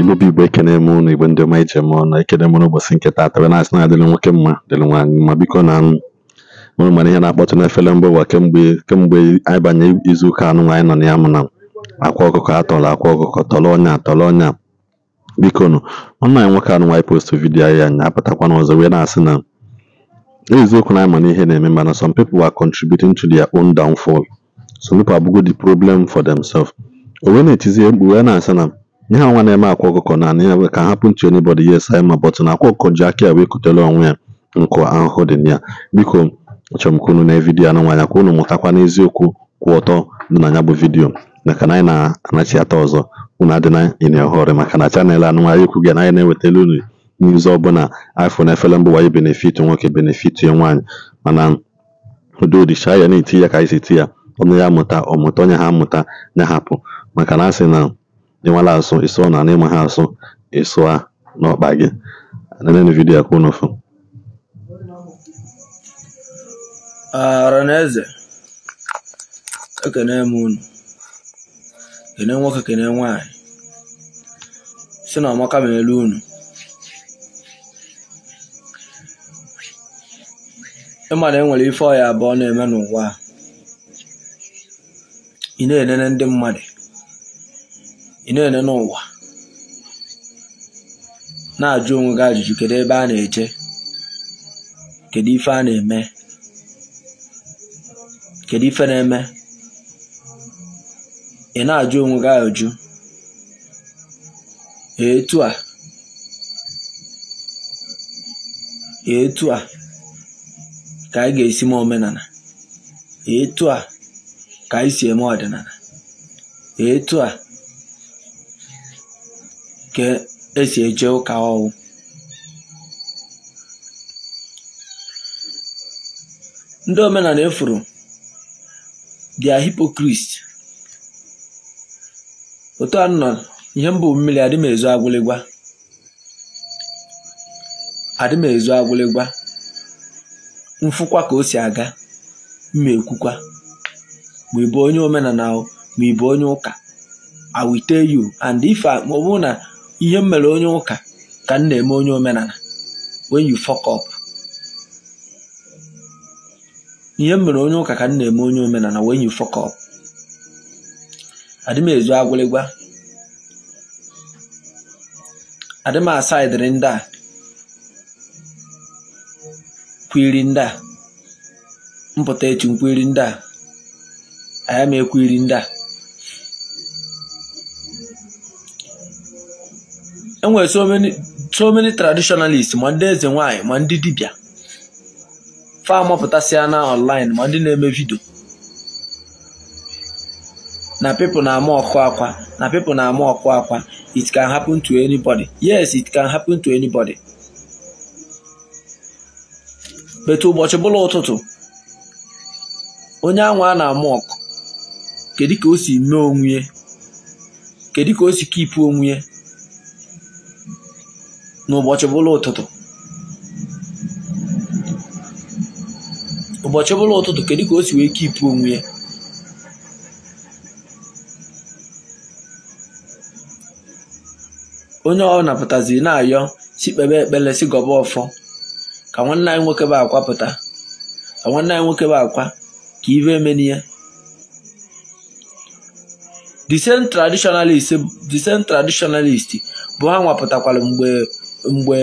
Igbo bụ Igbo ekene m ụnụ Igbo ndị ọma ije m ọnụ ekene m n'ụbọchị nke taata wee na-asị na adịrị nwoke mma dịrị nwaanyị mma biko na mụrụ mana ihe na-akpọtụ n'efere mba ụwa kemgbe anyị banye izuụka anụ nwaanyị nọ na ya mụ na akwa ọkụkọ atọrọ akwa ọkụkọ tọrọ ọnya tọrọ ọnya biko nụ ọnụ anyị nwoke anụ nwaanyị post vidiyo anyị anya apụtakwana ọzọ wee na-asị na eziokwu na anyị ma na ihe na-eme mana some people are contributing to their own downfall some people abụgo the problem for themselves o wee na-etizie mkpu wee na-asị na ihe nwa na-eme akwa ọkụkọ naanị ya ka m hapụ ntu anybody yes anyị ma but na akwa ọkụkọ ji aka ya wee kutere onwe ya nkụ ahụhụ dị na ya biko achọrọ m unu na vidiyo anụ nwaanyị ka unu mụtakwa n'eziokwu kwụ ọtọ dị na ya bụ vidiyo maka na anyị na-anachiata ọzọ unu adịna ịna ọhụrụ maka na chanel anụ nwaanyị ekwu gị na anyị na-ewetara unu n'izu ọbụla afọ na efere mba wanyị benefit nwoke benefit nwaanyị mana udo dị ya na-eti ya ka anyị si eti ya ọnụ ya mụta ọ mụta onye ha mụta ya hapụ maka na asị na ịmalụ asụ ịsụọ na ịma ha asụ a n'ọkpa gị neneni vidio a ka unu fụ Aranaeze ekene m unu kene nwoke kene nwanyị si na ọmaka ma elu unu ịma na enwere ife ọya abụọ na-eme n'ụwa ị na-enene ndị mmadụ ị na-ele n'ụwa na-ajụ onwe gị ajụjụ kedu ebe a na eche kedu ife a na-eme kedu ife na-eme ị na-ajụ onwe gị ajụjụ etu a etu a ka anyị ga-esi mee omenala etu a ka anyị si eme ọdịnala etu a e esi eje ụka ọwụ ndị omenala efuru dia hipokrit otu a nọ ihe mbụ mmiri adị m ezu agwụligwa adị m ezu mfụkwa ka o si aga mma ekwukwa ma ịbụ onye omenala ma ịbụ onye ụka awite you and ife ma ọ bụrụ na ihe m mere onye ụka ka m na-eme onye omenala when you fuck up ihe m mere onye ụka ka m na-eme onye omenala when you fuck up adị ezu agwụlịgwa adị m asaidịrị ndị a kwiri ndị a mpụta echi nkwiri ndị a aya m ekwiri ndị a enwere so many traditionalist ma ndị eze nwanyị ma ndị dibịa fa mapụtasịa na online ma ndị na-eme vidio na pipo na-ama ọkụ akwa na people na-ama ọkụ akwa it can happen to anybody yes it can happen to anybody betu ụbọchị bụla ụtụtụ onye anwa a na-ama ọkụ kedu ka o si mee onwunye kedu ka o si kipu onwe n'ụbọchị bụla ụtụtụ ụbọchị bụla ụtụtụ kedu ka o si wee kipụ onwe ya onye ọ napụtazi na-ayọ si kpebe ekpere si gọba ọfọ ka nwanne anyị nwoke bụ akwa pụta ka nwanne anyị nwoke bụ akwa ka ive emeni ya the same traditionalist the same traditionalist bụ ha nwapụtakwara mgbe mgbe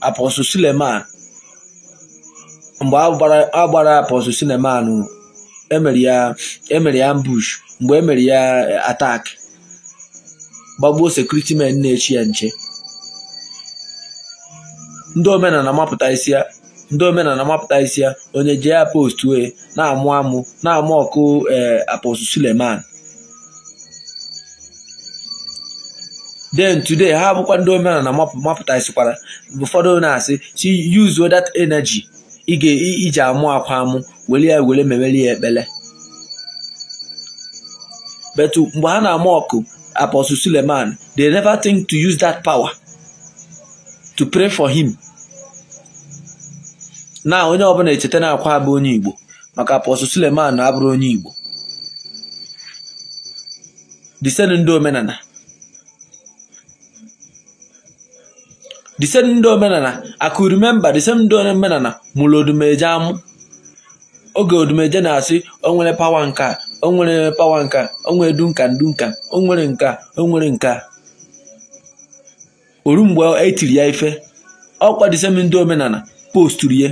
apọstụl Suleman mgbe a gbara apọstụl emere ya emere ya ambush mgbe emere ya e, atak gbagbuo sekuriti men na-echi ya nche ndị omenala mapụta isi ya ndị omenala mapụta isi ya onye jee ya post wee na-amụ amụ na-amụ ọkụ e, aposu Suleman then today ha bụkwa ndị omenala na sikwara ụfọdụ na-asị si yuzuo that energy iji amụ akwa amụ were ya were memere ya ekpele but mgbe ha na amụ ọkụ apostle Suleman they never think to use that power to pray for him na onye ọbụla echeta na akwa abụ onye Igbo maka apostle Suleman na abụrụ onye Igbo disen ndị omenala the same ndị omenala I could remember the same ndị omenala mụrụ odumeje amụ oge odumeje na-asị onwere pawa nka onwere nwere pawa nka onwere dunka dunka onwere nka onwere nka oru mgbe etiri ya ife ọkwa the ndị omenala posturu ya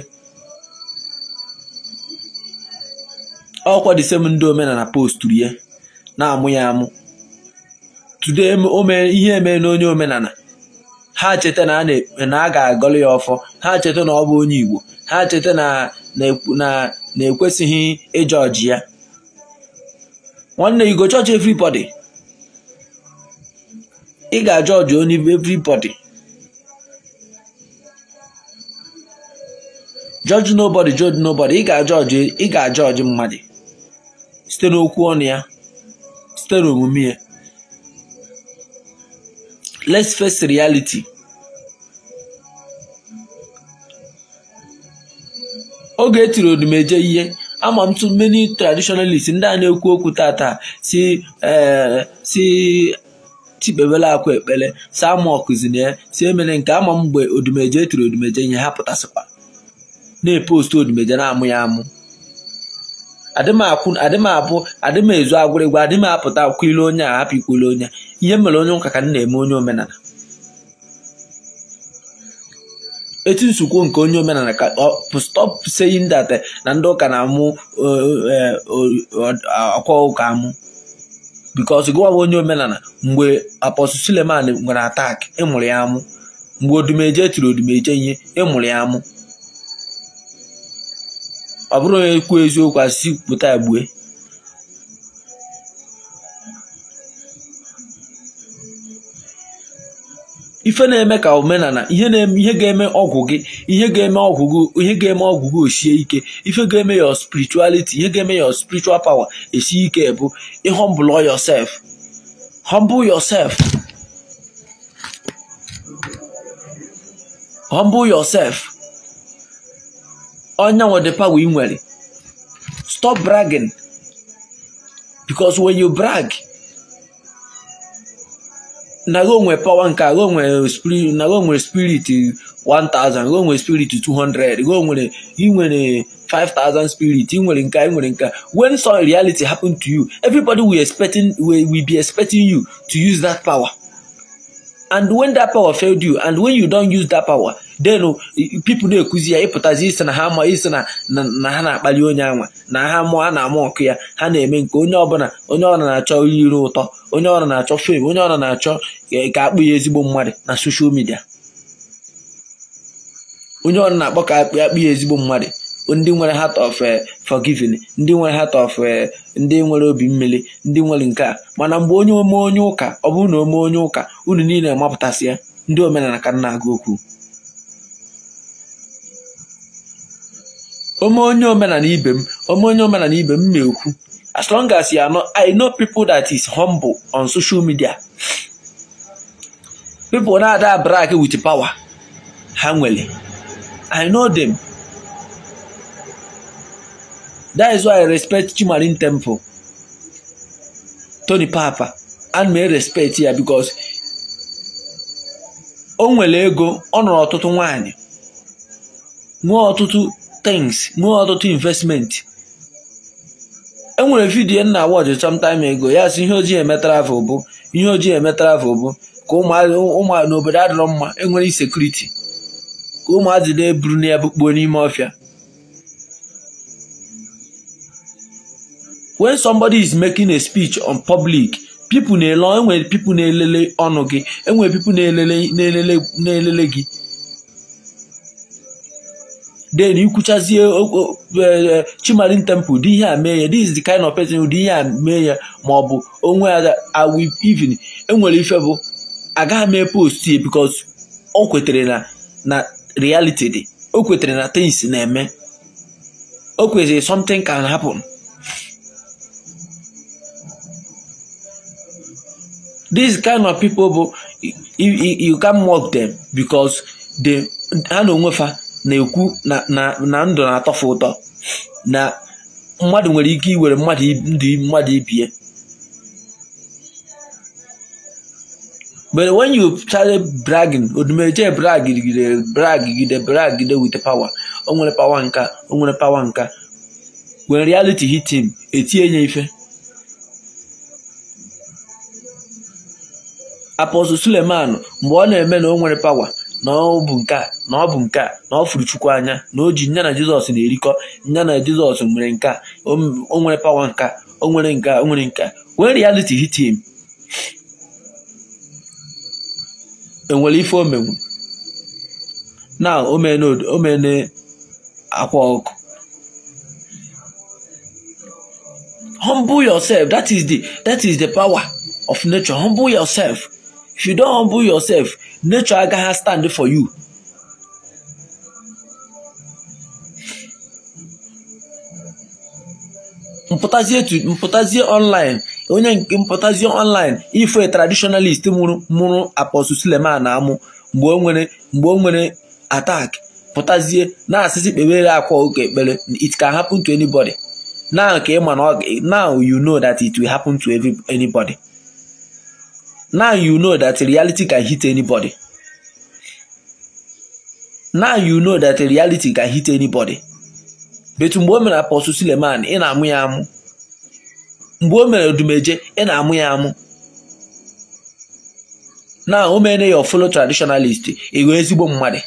ndị omenala posturu ya na-amụ ya amụ tude ihe emee onye omenala ha cheta na a ga-agọlụ ya ọfọ ha cheta na ọ bụ onye Igbo ha cheta na na-ekwesịghị ịjọ ya nwanne igo chọọchị judge everybody ị ga-ajọ onye everybody judge nobody judge nobody ị ga-ajọ ị ga-ajọ mmadụ site n'okwu ọnụ ya site n'omume ya let's face reality oge etiri odumeje e ihe ama m tu many traditionalist ndị a na-ekwu okwu tata si eh, si tipebela akwa ekpere si ama ya si emere nke ama m mgbe odumeje etiri odumeje e ihe ha pụtasịkwa na-epostu odumeje na-amụ ya amụ adịm abụ adịm ezu agwụrịgwa adịm apụta kwile onye a hapụ ikwule onye ihe mere onye ụka ka m na-eme onye omenala etu nsukwo nke onye omenala ka stop saying that eh, na ndị ụka na-amụ eh, eh, ọkwa ụka amụ because gụwa onye omenala mgbe apostle Suleman nwere atak ịmụrụ ya amụ mgbe odumeje tiri odumeje ihe ịmụrụ ya amụ ọ bụrụ onye kwuo eziokwu asị pụta egbue ife na-eme ka omenala ihe ihe ga-eme ọgwụ gị ihe ga-eme ọgwụ gị ihe osie ike ife ga-eme your spirituality ihe ga-eme your spiritual power esie ike bụ ịhọmbụlọ yosef. humble yosef. humble yosef. onye nwe power ị nwere stop bragging because when you brag naro onwe power nke aro onwere spirit naro onwere spirit 1000 ro onwere spirit 200 ro nwere ị nwere 5000 spirit ị nwere nka ị nwere nka when some reality happen to you everybody will expecting will, will be expecting you to use that power and when that power failed you and when you don use that power denụ pipu na-ekuzi ya ịpụtazi isi na ha ma isi na na ha na-akpali onye anwa na ha mụọ ha na-amụ ọkụ ya ha na-eme nke onye ọbụla onye ọbụla na-achọ iri ụtọ onye ọbụla na-achọ fem onye ọbụla na-achọ ka akpụ ya ezigbo mmadụ na soshal midia onye ọbụla na-akpọ ka akpụ ya akpụ ya ezigbo mmadụ ndị nwere heart of forgiving ndị nwere heart of ndị nwere obi mmiri ndị nwere nke a mana mgbe onye ome onye ụka ọ bụrụ na ome onye ụka unu niile amapụtasị ya ndị omenala ka na-agụ okwu ome onye omenala ibe m ome onye omenala ibe m na-ekwu as long as you know i know people that is humble on social media people na-ada wit with power ha nwere i know them that is why i respect Chimarin Temple Tony Papa and may respect ya because o nwere ego ọ nọrọ ọtụtụ nwanyị nwee ọtụtụ things nwee ọtụtụ investment enwere vidiyo nna e wọjụ sometime ago ya sị ihe ojii eme travel bụ ihe ojii eme travel bụ ka ụmụ n'obodo adịrọ mma enwere insekuriti ka ụmụazị na-eburu na ya n'ime ọfịa when somebody is making a speech on public people na-ele enwere people na-elele ọnụ gị enwere people na-elele na-elele gị then ikwuchazie uh, oh, oh, uh, uh, Chimarin temple dị ihe a mee ya this is the kind of person dị ihe a mee ya ma ọ bụ onwe ya awi even enwere ife bụ agaghị mee post ya because o kwetara na na reality dị o kwetara na things na-eme o kwetara something can happen this kind of people bụ you can mock them because they ha na onwe fa na-ekwu na ndụ na-atọfe ụtọ na mmadụ nwere ike iwere mmadụ ndụ mmadụ ibie But when you started bragging, odumeje bragide bragide bragide with power, o nwere power nka, o nwere power nka. When reality hit him, etie ife. Apostle Suleiman mgbe ọ na-eme na o nwere power na ọ bụ nke a na ọ bụ nke na ọ chukwu anya na o ji nya na jizọs na-erikọ nya na jizọs nwere nke a o nwere pawa nke a o nwere nke a o nwere nke a when hit him enwere ife o menwu na o mene akwa ọkụ humble yourself that is the that is the power of nature humble yourself if you don't humble yourself nature agaghị stand for you mpụtazie mpụtazie online onye nke mpụtazie online ife traditionalist mụrụ mụrụ apostle Suleman amụ mgbe o nwere mgbe o nwere attack pụtazie na-asịsị kpebere akwa oge ekpere it can happen to anybody now ka ị ma na now you know that it will happen to anybody now you know that reality can hit anybody now you know that reality can hit anybody betu mgbe o mere apọsụ Suleman ị na-amụ ya amụ mgbe o mere Dumeje ị na-amụ ya amụ na o mere ya ọfụlụ traditionalist ịghọ ezigbo mmadụ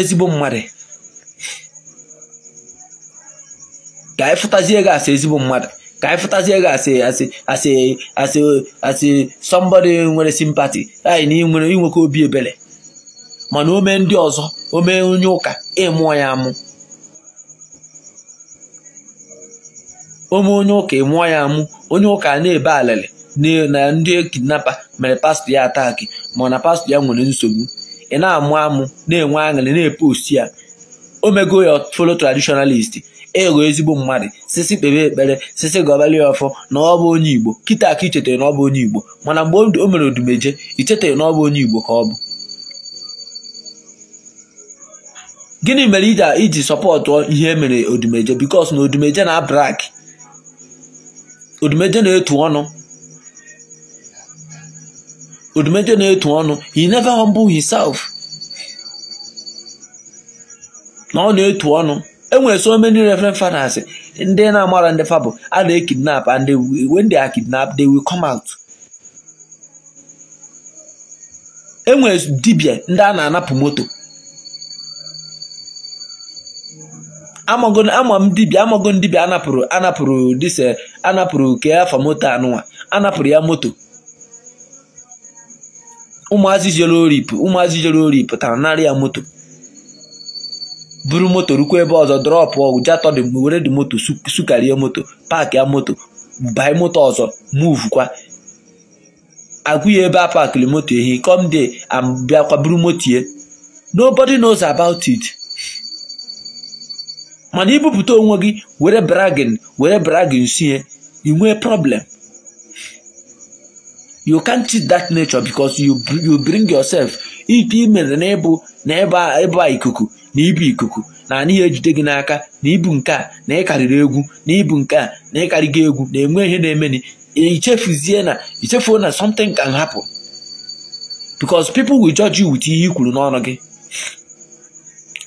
ezigbo mmadụ ka anyị e fụtazie gị e asị ezigbo mmadụ ka anyị fụtazie gị asị asị asị asị asị sọmbọdị nwere simpati anyị na inweke obi ebere mana o ndị ọzọ o onye ụka ịmụọ ya amụ ome onye ụka ịmụọ ya amụ onye ụka na-ebe alele na ndị e kidnapa mere pastọ ya ataki ma na pastọ ya nwere nsogbu ị na-amụ amụ na-enwe aṅụrị na epost ya o mego ya folo tradishonalisti ịghọ e ezigbo mmadụ sisi kpebe ekpere sisi gọbali ọfọ na ọ bụ onye igbo kịta aka ichetara na ọ bụ onye igbo mana mgbe o mere odumeje ichetara na ọ bụ onye igbo ka ọ bụ gịnị mere iji sọpọtụ ihe emere odumeje bikos na odumeje na abrak odumeje na-etu ọnụ odumeje na-etu ọnụ he never humble himself na ọ na-etu ọnụ enwere so many reverend fathers ndị na-amara ndị fabụ a na-ekidnap and when they are kidnapped they will come out enwere dibia ndị a na-anapụ moto ama dibia dibịa amago anapụrụ anapụrụ dise eh, anapụrụ ke afọ moto anụnwa anapụrụ ya moto ụmụazị jere oripụ ụmụazị jere ori pụtara narị ya moto buru moto rukwa ebe ọzọ drọpụ ja dị di were dị moto sukarie moto paakị ya moto buy moto ọzọ kwa. agụ ya ebe a paakịrị moto ehi come there bịakwa buru moto ye nobody knows about it mana ibupụta onwe gị were bragin were bragin sie i nwee problem you can't cheat that nature because you bring yourself ite imere na ịbụ na ikuku na ibu ikuku na anaghị ejide gị n'aka na ibu nke a na ịkarịrị egwu na ibu nke a na gị egwu na-enwe ihe na-emeni ichefuzie na ichefuo na something can happen because people will judge you with ihe i kwuru n'ọnụ gị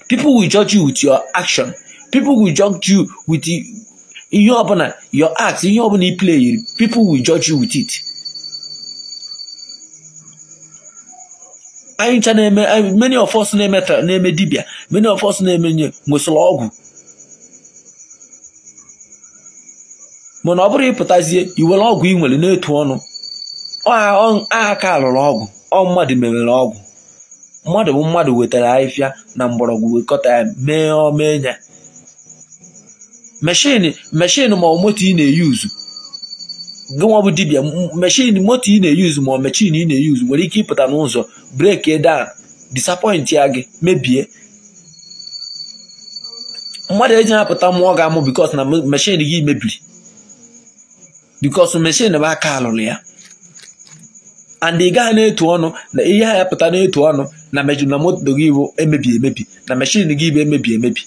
people will judge you with your action people will judge you with ihe ọbụla your act ihe ọbụla i play people will judge you with it anyị ncha na-eme many of na-eme na-eme dibịa many of us na-emenye nwesịrị ọgwụ mana ọ bụrụ ịpụtazie iwere ọgwụ ị nwere na-etu ọnụ a ka alụrụ ọgwụ ọ mmadụ mewere ọgwụ mmadụ bụ mmadụ wetara ahịfịa na mgbọrọgwụ wekọta ya mee omenya meshin meshin ma ọ moto ị na-eyuzu gịnwa bụ dibịa mechin moto ị na-eyuzu ma mechin ị na-eyuzu nwere ike ịpụta n'ụzọ breki dan disapọint ya gị mebie mmadụ eji apụta mmụọ ga-amụ bikos na mechin gị mebiri bikos mechin bụ aka alụrụ ya and ị gaghị na-etu ọnụ na ihe ha ya pụta na-etu ọnụ na mejụ na moto gị bụ emebi emebi na mechin gị bụ emebi emebi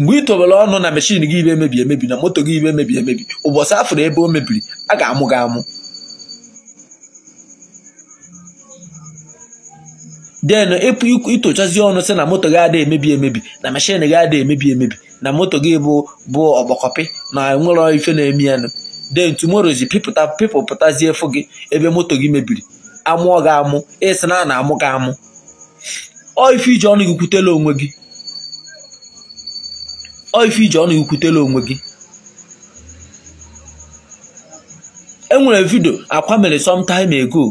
mgbe ị tobere ọnụ na mechin gị ibe emebi emebi na moto gị ibe emebi emebi ụbọchị afụrụ ebe o mebiri a ga-amụ gị amụ den ịpụ itochazi ọnụ sị na moto gị adịghị emebi emebi na meshin gị adịghị emebi emebi na moto gị bụ bụ ọgbakọpị na nwere ife na-eme yanụ den tumorozi efu gị ebe moto gị mebiri amụọ gị amụ ịsị na a na-amụ gị amụ ọ ife iji ọnụ gị kwutela onwe gị ọ ife iji ọnụ ikwutela onwe gị enwere vidio akwa mere sometime ago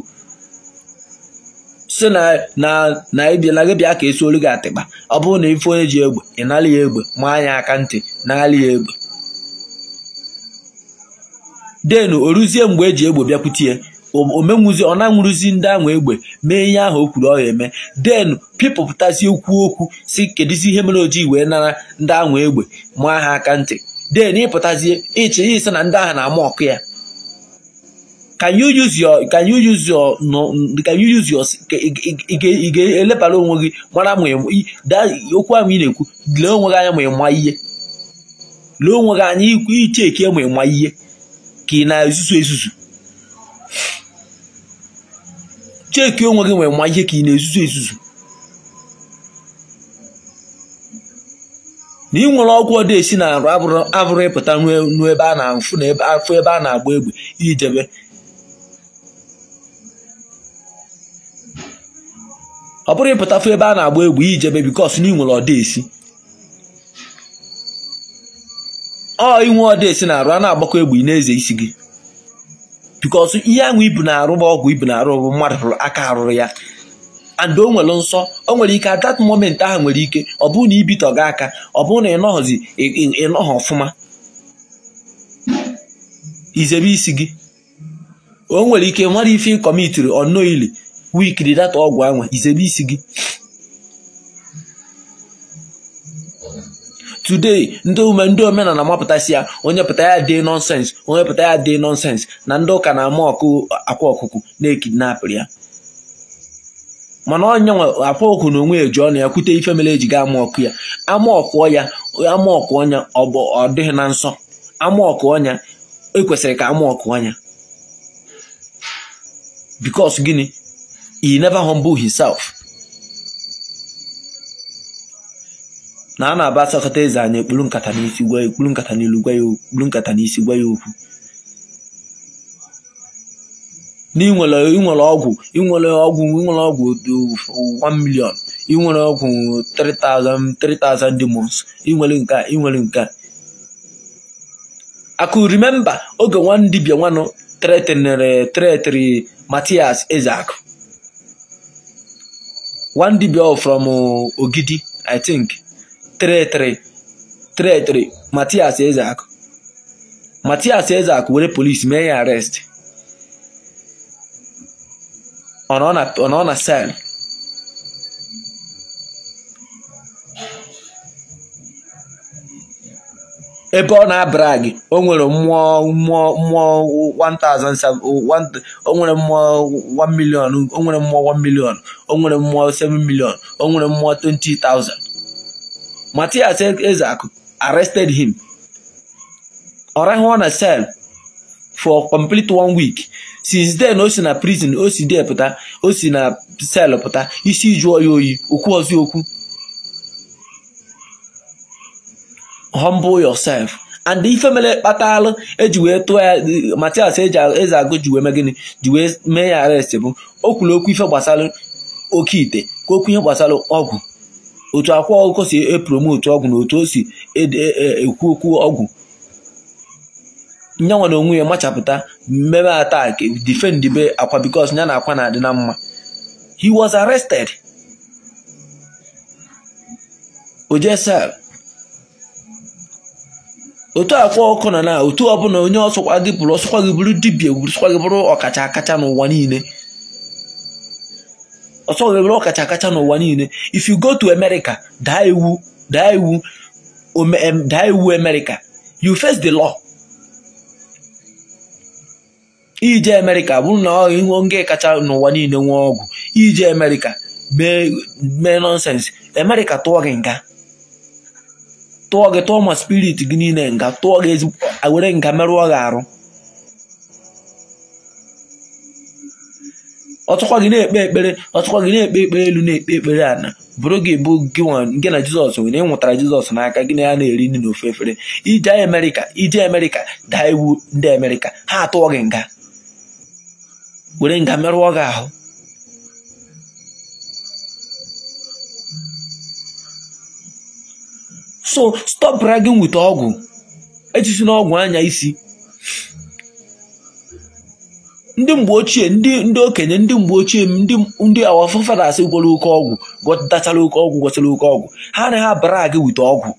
si na na ebiela gị bịa ka esi olu gị atịkpa ọ bụrụ na ife onye ji egbe ị nalị ya egbe ma anya aka ntị nalị ya egbe denu o ruzie mgbe eji egbe bịakwutie omenwuzi ọ na-anwụrụzi ndị ahụ egbe mee ihe ahụ o kwuru ọha eme den pịpụpụtasị okwu okwu si kedụzi ihe mere ojii wee nara ndị ahụ egbe maa ha aka ntị den ịpụtazie ịchị ya ise na ndị ahụ na-ama ọkụ ya ka you ga-elebara onwe gị mara ma okwu ahụ ị na-ekwu lee onwe gị anya ma ịma ihe lee onwe gị anya iche eke ma ịma ihe ka ị na-ezuzu ezuzu cheki onwe gị nwere ma ihe ka ị na-ezuzu ezuzu na ị nwere ọgwụ ọdị esi na arụ abụrụ ịpụta n'ebe a na-afụ afụ ebe a na-agba egbe ijebe ọ bụrụ ịpụtafụ ebe a na-agba egbe ijebe bikos na ị nwere ọdị esi ọ inwe ọdị esi na arụ a na-agbakọ egbe ị na-eze isi gị bikos ihe ahụ ibu na-arụ ọgwụ ibu na-arụ bụ mmadụ aka arụrụ ya and o nwere nsọ o nwere ike at that moment ahụ nwere ike ọ bụrụ na ibitọ gị aka ọ bụrụ na ịnọghọzi ịnọghọ ọfụma izebe isi gị o nwere ike nwere ife ịkọmitiri ọnọ ili wikiri data ọgwụ anwa izebe isi gị today ndị omenala mapụtasị ya onye pụta ya dị nọnsens onye pụta ya dị nọnsens na ndị ụka na-ama ọkụ akwa ọkụkụ na-ekidnapụrụ ya mana onye nwe akwa ọkụ na onwe eji ọnụ ya kwute ife mere eji ga ama ọkụ ya ama ọkụ ya ama ọkụ ọnya ọ dịghị na nsọ ama ọkụ ọnya ekwesịrị ka ama ọkụ ọnya because gịnị he never humble himself na a na-aba asakọta eze anyị ekpuru nkata n'isi gwa ya ekpuru nkata n'ilu gwa ya okpuru nkata n'isi gwa ya okwu n'inwere inwere ọgwụ inwere ọgwụ inwere ọgwụ 1 million inwere ọgwụ 3000 demons inwere nke inwere nke akụ remember oge nwa ndị nwanụ tretinere tretiri Matias Ezeaku from uh, Ogidi I think tretrị Matias Ezeakụ Matias were polisi mee ya arestị ọ na sel ebe ọ na-abara gị o mmụọ nwere mmụọ 1 million o nwere mmụọ 1 million o mmụọ 7 million o nwere mmụọ 20000 Matias Ezeaku arrested him ọ na sel for complete one week since then o si na prison o si dee pụta o si na sel pụta isi jụọ ya oyi okwu ọzọ okwu humble yourself and ife mere kpatalụ eji wee tụọ ya Matias e agụ ji wee mee mee ya arrest bụ o kwuru okwu ife gbasara oke ite ka okwu ihe gbasara ọgwụ otu akwa ọkụkọ si epromotu ọgwụ na otu o si e e, e, ekwu okwu ọgwụ nyanwa na onwe ya machapụta mmebe atak defend be akwa bikos ya na akwa na-adị na mma he was arrested oje otu akwa ọkụ na na otu ọbụla onye ọsọkwa gị bụrụ ọsọkwa gị bụrụ dibia sọkwa gị bụrụ ọkacha akacha n'ụwa niile ọsọ nwere ọkacha kacha n'ụwa niile if you go to America daa iwu daa iwu daa iwu America you face the law ije America bụrụ na ihu nge kacha n'ụwa niile nwee ọgwụ ije America mee nonsense America tụọ gị nga tụọ gị tụọ ma spirit gị niile nga tụọ gị were nga merụọ gị arụ ọtụkwa gị na-ekpe ekpere ọtụkwa gị na-ekpe ekpere elu na-ekpe ekpere ana bụrụ gị bụ gị gị na jizọs nwere ịnwụtara nwụtara jizọs n'aka gị na ya na-eri nri na ofe efere ije amerịka ije amerịka daa iwu ndị amerịka ha atụọ gị nga were nga merụọ gị ahụ so stop gị nweta ọgwụ ejisi n'ọgwụ anya isi ndị mgbe ochie ndị ndị okenye ndị mgbe ochie ndị ndị awafafadas gwara oke ọgwụ gọtachara oke ọgwụ gwọchara oke ọgwụ ha na ha bara gị ọgwụ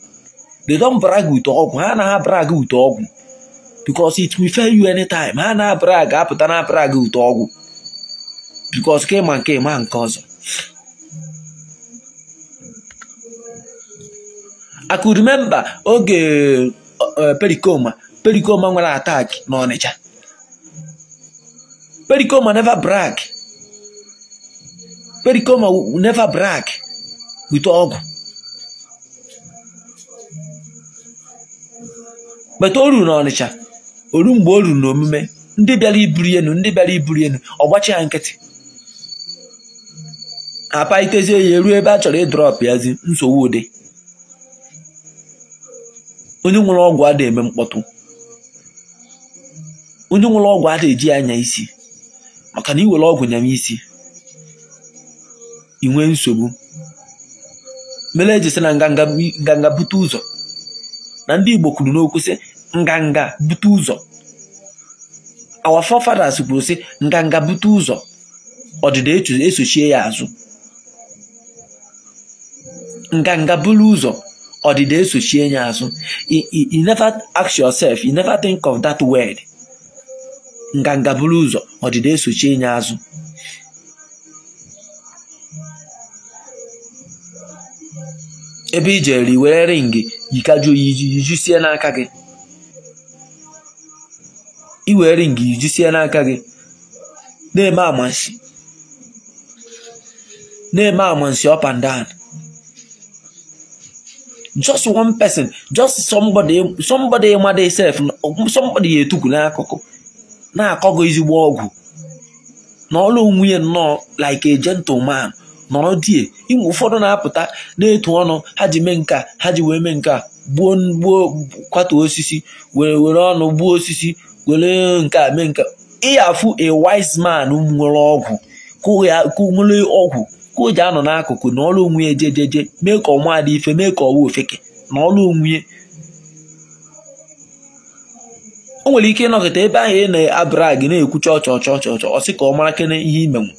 they don bara gị ọgwụ ha na ha bara gị ọgwụ because it will fail you anytime ha na abara apụta na abara gị ọgwụ because ka ịma nke ịma nke ọzọ I could remember oge eh, perikoma perikoma nwere ataki n'Ọnịcha Pericoma never brag. Pericoma never brag ọgwụ. Bata olu na n'Ọnịcha, olu mgbe o ruru omume, ndị bịara iburu enu ndị bịara iburu enu ọ gbachi ya nkịtị. Apalitezie ya eruo ebe a chọrọ ịdrọpụ yazi nsogbu ụdị. Onye nwere ọgwụ adịghị eme mkpọtụ. Onye nwere ọgwụ adịghị eji anya isi. maka na iwere ọgwụ nyam isi ị nwee nsogbu mere ejisi na nganga bute ụzọ na ndị Igbo kwuru n'okwu sị nganga bute ụzọ our forefathers kwuru sị nganga bute ụzọ ọdịda esochie ya azụ nganga buru ụzọ ọdịda esochie ya azụ you never ask yourself you never think of that word. nganga buru ụzọ ọdịda esochi enye azụ ebe i jere were ringi yikajuo jisie n'aka gị iwere ringi yijisie n'aka gị na-eme amansi na-eme amansi up and down just one person just somebody somebody mother na somebody etukwu n'akụkụ na-akọgo ezigbo ọgwụ n'ọlụ ọlụ nwunye nnọọ like a gentleman nọrọ die ịmụ ụfọdụ na-apụta na-etu ọnụ ha ji mee nka ha ji wee mee nka gbuo gbuo kwatu osisi were were ọnụ gbuo osisi were nke a mee nka ịyafụ a wise man nwere ọgwụ nwere ọgwụ ka o ji anọ n'akụkụ na ọlụ nwunye jejeje mee ka ọnwa dị ife mee ka ọwa ofeke na ọlụ nwunye. o nwere ike ịnọkịta ebe ahụ ị na-abara gị na-ekwucha ọchọ ọchọ ọchọ ọchọ ọsị ka ọ mara kene ihe imenwu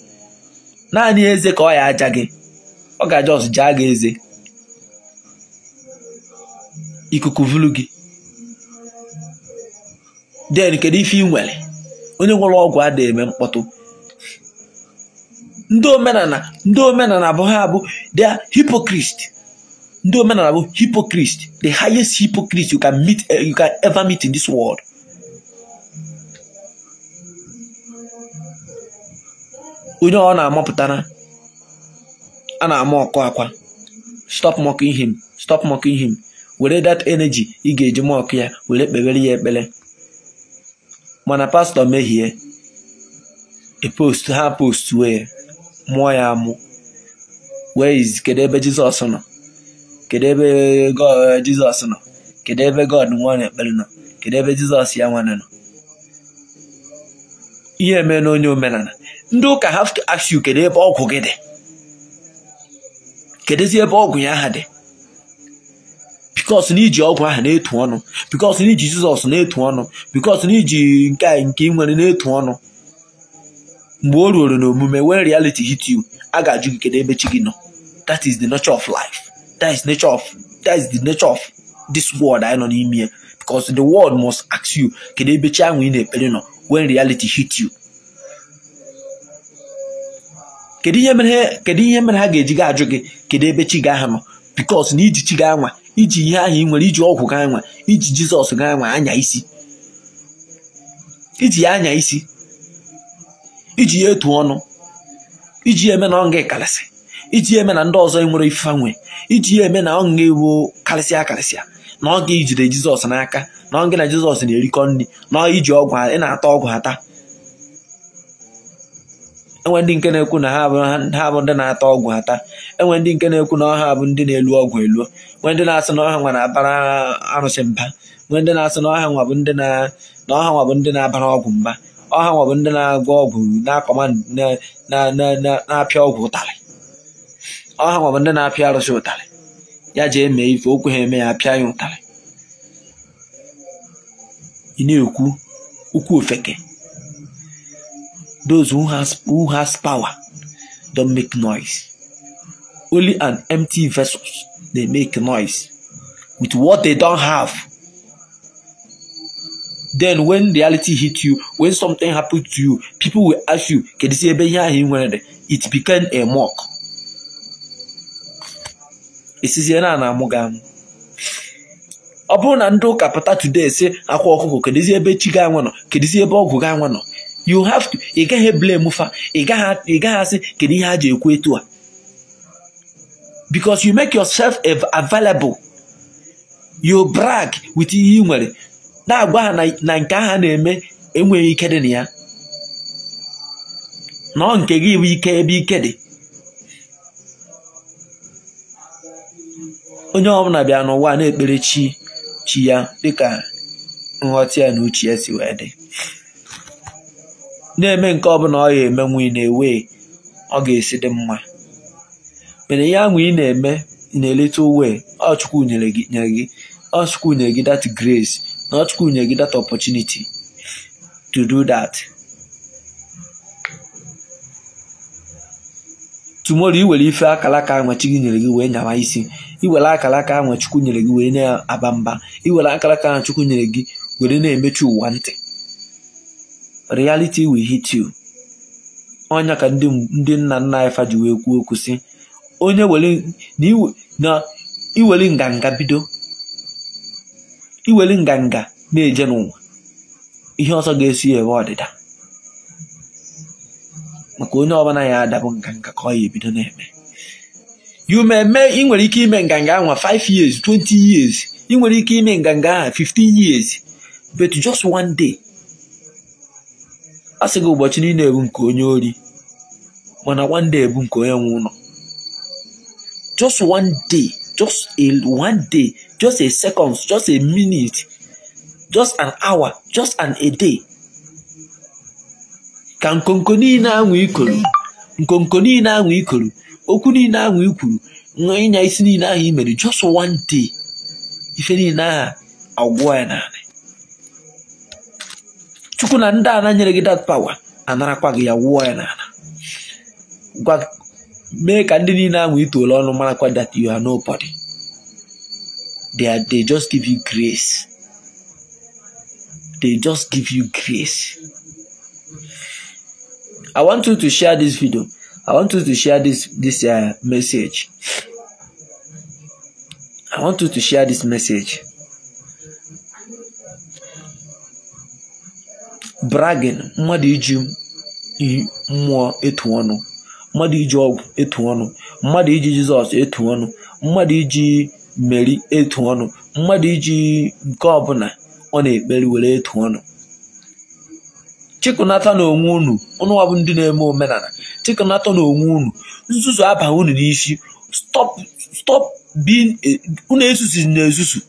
naanị eze ka ọ ya aja gị ọ ga-aja ọsụ jaa gị eze ikuku vulu gị den kedu ife ị nwere onye nwere ọgwụ ada eme mkpọtụ ndị omenala ndị omenala bụ ha bụ the hypocrite ndị omenala bụ hypocrite the highest hypocrite you can meet eh, you can ever meet in this world onye ọ na-amapụtara a na-ama ọkụ akwa stop mocking him stop mocking him were that energy ị ga-eji mọkụ ya were kpewere ya ekpere mana pastọ mehie epost ha post wee mụọ ya amụ wee kedu ebe jizọs nọ kedu ebe jizọs nọ kedu ebe god nwa na-ekpere nọ kedu ebe jizọs ya nwane nọ ihe mee na onye omenala ndị ụka ha asị kedu ebe ọgwụ gị dị kedụzi ebe ọgwụ ya aha dị bikos na iji ọgwụ ahụ na-etu ọnụ bikos na iji jizọs na-etu ọnụ bikos na iji nke nke nwere na-etu ọnụ mgbe o ruoro n'omume wen reality hit you a ga-ajụ gị kedu ebe chi gị nọ that is the nature of life that is nature of that is the nature of this world anyị nọ n'ime ya bikos the world must ask you kedu ebe chi ahụ ị na-ekpere nọ wen reality hit you kedu ihe mere kedu ihe mere ha ga-eji ga ajụ gị kedu ebe chi ga nọ bikos na iji chi ga anwa iji ihe ahụ ị nwere iji ọgwụ ga anwa iji jizọs ga anwa anya isi iji ya anya isi iji ya etu ọnụ iji ya eme na ọnga ịkarịsị iji ya eme na ndị ọzọ nwere ife iji ya eme na ọnga ewu karịsịa akarịsịa na ọ jide ijide jizọs n'aka na ọ gị na jizọs na-erikọ nri na iji ọgwụ ị na-ata ọgwụ ha taa enwe ndị nke na-ekwu na ha bụ ndị na-ata ọgwụ ata enwe ndị nke na-ekwu na ọha bụ ndị na-elu ọgwụ elu nwe ndị na-asị na ọha nwa na-abara arụsị mba nwe ndị na-asị na ọha nwa bụ ndị na ọha nwa bụ ndị na-abara ọgwụ mba ọha nwa bụ ndị na agwa ọgwụ na-akọma na-apịa ọgwụ ụtarị ọha nwa bụ ndị na-apịa arụsị ụtarị ya ji eme ife okwu ha eme ya apịa ya ụtarị ị na-ekwu ukwu ofeke those who has who has power don make noise. Only an empty vessels dey make noise with what they don have. Then when reality hit you, when something happen to you, people will ask you, ebe "Can ị nwere? It become a mock. ọ bụrụ na ndị ụka pụta today si akwa ọkụkọ kedizi ebe chi ga nwe nọ kedizi ebe ọgwụ ga nwe nọ you have to ị gaghị blame fa ị gaghị asị kedu ihe a ji ekwu etu a because you make yourself available you brag with ihe ị nwere na-agwa ha na nke aha na-eme enweghị ike dị na ya nọọ nke gị bụ ike ebe ike dị onye ọbụla bịa n'ụwa na-ekpere chi chi ya dịka nghọta ya na uche ya si wee dị na-eme nke ọbụla ọ ya eme ị na-ewe ọ ga-esi dị mma mana ihe ahụ ị na-eme na-eleta uwe ọchukwu nyere gị ọchukwu nyere gị that grace na ọchukwu nyere gị that opportunity to do that tumoro iwere ife akalaka ahụ chi gị nyere gị wee nyawa isi iwere akalaka ahụ chukwu nyere gị wee na-aba mba iwere akalaka ahụ chukwu nyere gị were na-emechi ụwa ntị reality will hit you onye ka ndị nna nna anyị faji kwuo okwu si onye na iweli nganga bido iweli nganga na-eje n'ụwa ihe ọzọ ga-esi ewe ọdịda maka onye ọbụla ya adabụ nganga ka ọ ya ebido na-eme you ị nwere ike ime nganga ahụ 5 years 20 years ị nwere ike ime nganga ahụ 15 years but just one day a sị gị ụbọchị niile ebu nke onye ori mana one day ebu nke onye nwe ụlọ just one day just a one day just a second just a minute just an hour just a day ka nkonko niile anwụ ikoro nkonko niile anwụ ikoro okwu niile anwụ ikwuru ịnya isi niile ahụ i mere just one day ife niile a agwụ ya naanị chuku na nda na nyere gị that power anarakwa gị ya wụọ ya n'ala gwa mee ka ndị niile ahụ No ọnụ marakwa that you are nobody they, are, they just give you grace they just give you grace i want you to share this video i want you to share this this uh, message i want you to share this message bragin mmadụ iji mmụọ etu ọnụ mmadụ iji ọgwụ etu ọnụ mmadụ iji jizọs etu ọnụ mmadụ iji meri etu ọnụ mmadụ iji nke ọbụla ọ na-ekpere were etu ọnụ chịkụnata na onwe unu ụnụ ọbụ ndị na-eme omenala chịkụnata na onwe unu nzuzu aba unu n'isi stọp unu ezuzu na ezuzu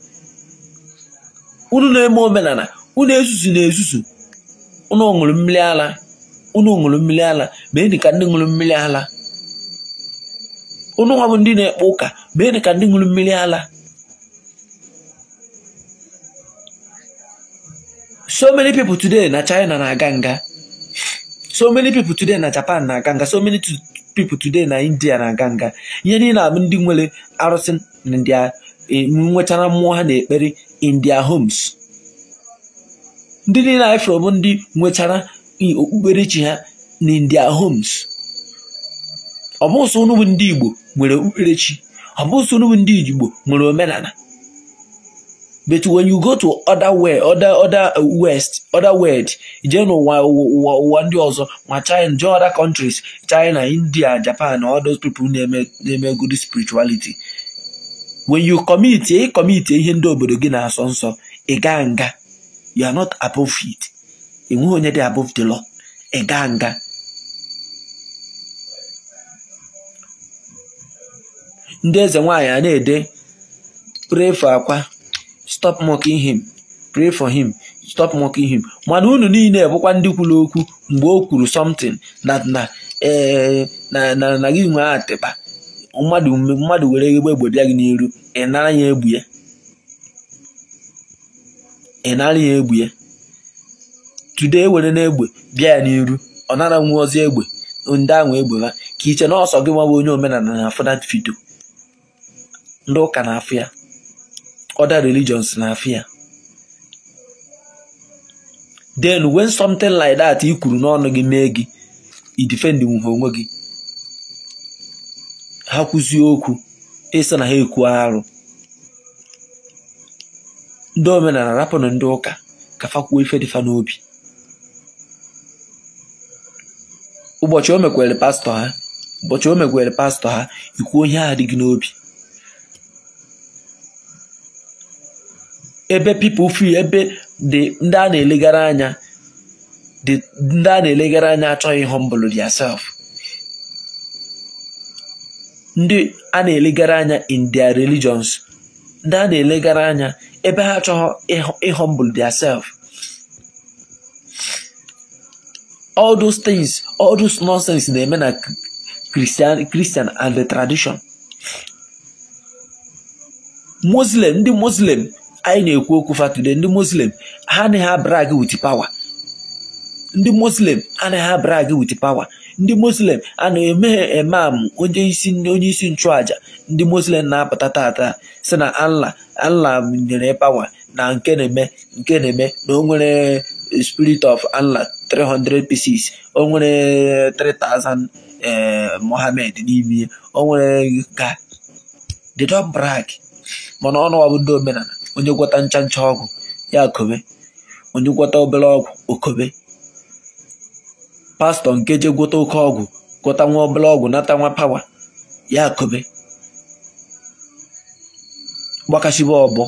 unu na-eme omenala unu ezuzu na ezuzu unu ṅụrụ mmiri ala unu ṅụrụ mmiri ala mee dị ka ndị ṅụrụ mmiri ala unu nwa ndị na-ekpe ụka mee dị ka ndị ṅụrụ mmiri ala. so many people today na China na-aga nga so many people today na Japan na-aga nga so many people today na India na-aga nga ihe niile abụ ndị nwere arụsị na ndị e, nwechara mmụọ ha na ekpere in their homes ndị niile anyị fọrọ bụ ndị nwetara okpukperechi ha in homes ọ bụ ndị Igbo nwere okpukperechi ọ bụ ndị Igbo nwere omenala but when you go to other other other uh, west other world jee n'ụwa ụwa ụwa ndị ọzọ ma China jee other countries China India Japan all those people na-eme na-eme good spirituality when you commit ị commit ihe ndị obodo gị na-asọ nsọ ị gaa nga you are not above it enweghị onye dị above the law ịga nga ndị eze nwaanyị a ede pray for akwa stop mocking him pray for him stop mocking him mana unu niile bụkwa ndị kwuru okwu mgbe o kwuru something na na eh, na gị nwe atịba mmadụ were egbe egbodo ya gị n'iru ị nara ya egbu ya ị nara ya egbe ya tude ewere n'egbe bịa ya n'iru ọ nara nwe ozi egbe ndị ahụ egbe ha ka iche na ọsọ gị nwawa onye omenala na na fido ndị ụka na afụ ya other religions na afụ ya then when something like that i kwuru n'ọnụ gị mee gị ị defend nwuhe onwe gị ha kwụzie okwu ịsị na ha ekwu arụ ndị omenala rapụnụ ndị ụka ka fakwuo ife dịfa n'obi ụbọchị o mekwere pastọ ha ụbọchị o mekwere pastọ ha ikwu onye ahụ dị gị n'obi ebe pipo fi ebe dị ndị a na-elegara anya dị ndị a na-elegara anya achọghị humble theirself ndị a na-elegara anya in their religions ndị a na-elegara anya ebe ha achọghọ ịhumble their self all those things all those nonsense na-eme na Christian Christian and the tradition Muslim ndị Muslim anyị na-ekwu okwu fatude ndị Muslim ha anaghị abrag with power ndị Muslim anaghị abrag with power ndị muslim a na-emeghe emam onye isi nchụaja ndị muslim na-apụta tata si na Allah Allah nyere pawa na nke na-eme nke na-eme na o nwere spirit of Allah 300 pieces o nwere 3000 eh, mohamed n'ime o nwere ka they don't mana ọnụ ọbụ ndị omenala onye gwọta ncha ncha ọgwụ ya kobe onye gwọta obere ọgwụ okobe pastọ nke je oke ọgwụ gwọta nwa ọbụla ọgwụ nata nwa pawa ya kobe gbakashiba ọbọ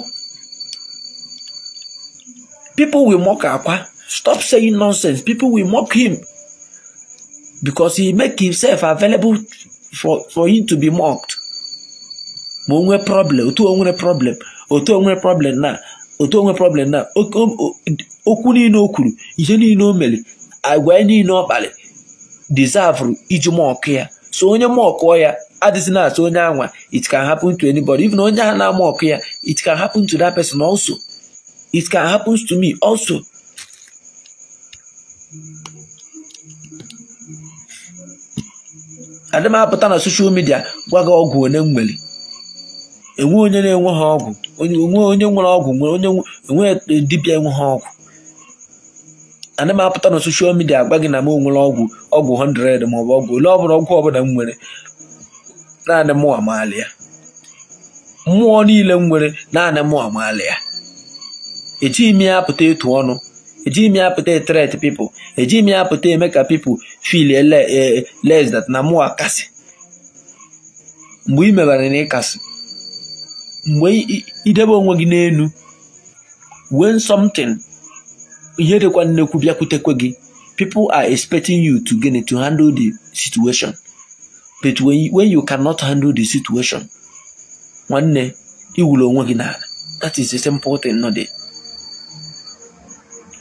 people will mock akwa stop saying nonsense people will mock him because he make himself available for for him to be mocked ma o nwee problem otu o problem otu o problem na otu o problem na okwu niile o kwuru ihe niile o mere agwa ya niile ọ kpali deserve iji mọkụ ya so onye mọkụọ ya adịzi na-asụ onye anwa it can happen to anybody even onye a na-ama ọkụ ya it can happen to that person also it can happen to me also adị apụta na soshal midia gwa gị ọgwụ onye nwere enwe onye na-enwe ha ọgwụ onye nwere ọgwụ enwe dibịa enwe ha ọgwụ ana m apụta na soshal midia agwa gị na m onwere ọgwụ ọgwụ 100 maọbụ ọgwụ ole ọbụla ọgwụ ọbụla m nwere naanị mụ amaala ya mmụọ niile m nwere naanị mụ amaala ya ejighị m ya apụta etu ọnụ ejighị m ya apụta tret pipụl ejighị m ya apụta eme ka pipụl fil les na mmụọ akasị mgbe ị mebara na ịkasị mgbe idebe onwe gị n'elu when something ihe dịkwa nnekwu bịakwutekwe gị people are expecting you to gịnị to handle the situation but when, when you cannot handle the situation nwanne iwuru onwe gị n'ala that is a simple thing no dey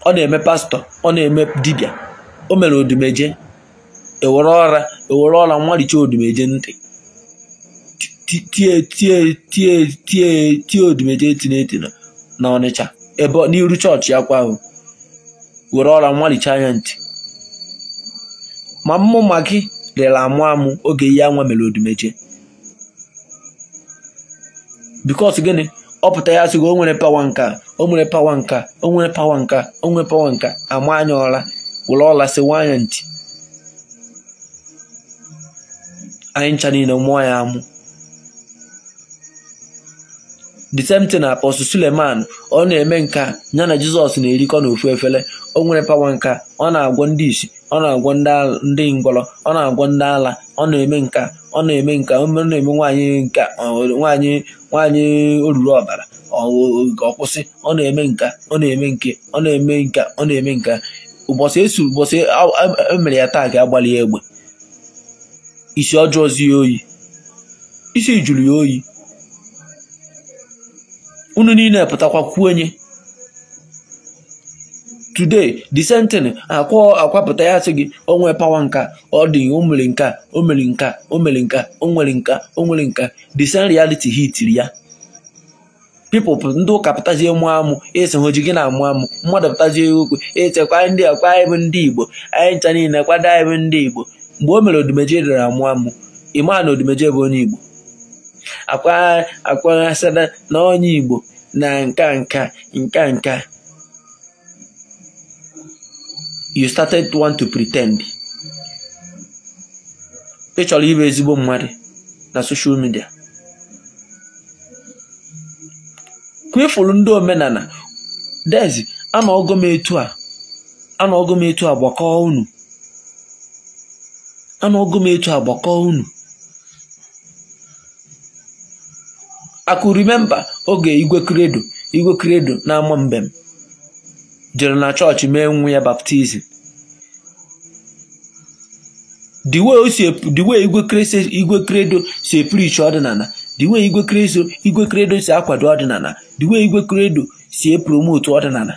ọ na-eme pastọ ọ na-eme dibịa o mere odumeje ewere ọra ewere ọra nwaricha odumeje ntị tie tie odumeje etineti na ọnịcha ebe n'iru chọọchị ya ahụ were ọra nwalicha anya ntị ma mmụ ma gị lere amụ amụ oge ihe anwa mere odumeje bikos gịnị ọ pụta ya sịgo o nwere pawa nka o nwere pawa nka o nwere pawa nka o nwere pawa nka ama anya ọra were ọla nwa anya ntị anyị ncha niile mụọ ya amụ the same thing apọstụ Suleman ọ na-eme nka ya na Jizọs na-erikọ n'ofu efere o nwere pawa nka ọ na-agwọ ndị isi ọ na-agwọ ndị ngwọrọ ọ na-agwọ ndị ala ọ na-eme nka ọ na-eme nka ọ na-eme nwaanyị nka nwaanyị nwaanyị oruru ọbara ọkwụsị ọ na-eme nka ọ na-eme nke ọ na-eme nka ọ na-eme nka ụbọchị esi ụbọchị emere ya taa ka agbalị ya egbe isi ọjọọ zi ya oyi isi jụrụ ya oyi unu niile pụtakwa kwuonye today the sentin akwa akwapụta ya sị gị o nwee pawa nka ọ dị o nka o mere nka omere nka o nwere nka o nwere nka the sen reality ya people ndị ụka pụtazie mụ amụ esi hoji gị na-amụ amụ mmadụ pụtazie okwu etekwa ndị akwa anyị ndị igbo anyị ncha niile kwado anyị ndị igbo mgbe o mere odumeje dara amụ amụ ịmaa na odimeje bụ onye igbo akwaghasịla na onye Igbo na nka nka nka nka you started to want to pretend ị chọrọ ịbụ ezigbo mmadụ na social media kwefuru ndị omenala dezi anọgo m etu a m etu a gbakọọ unu anọgo m etu a gbakọọ unu akụ rimemba oge igwe kredo igwe kredo na-ama mbem jere na chọọchị mee nwa ya baptizim diwe igwe kredo si epirichi ọdịnala diwe igwe kredo igwe kredo si akwado ọdịnala dwe igwe kredo si epromotu ọdịnala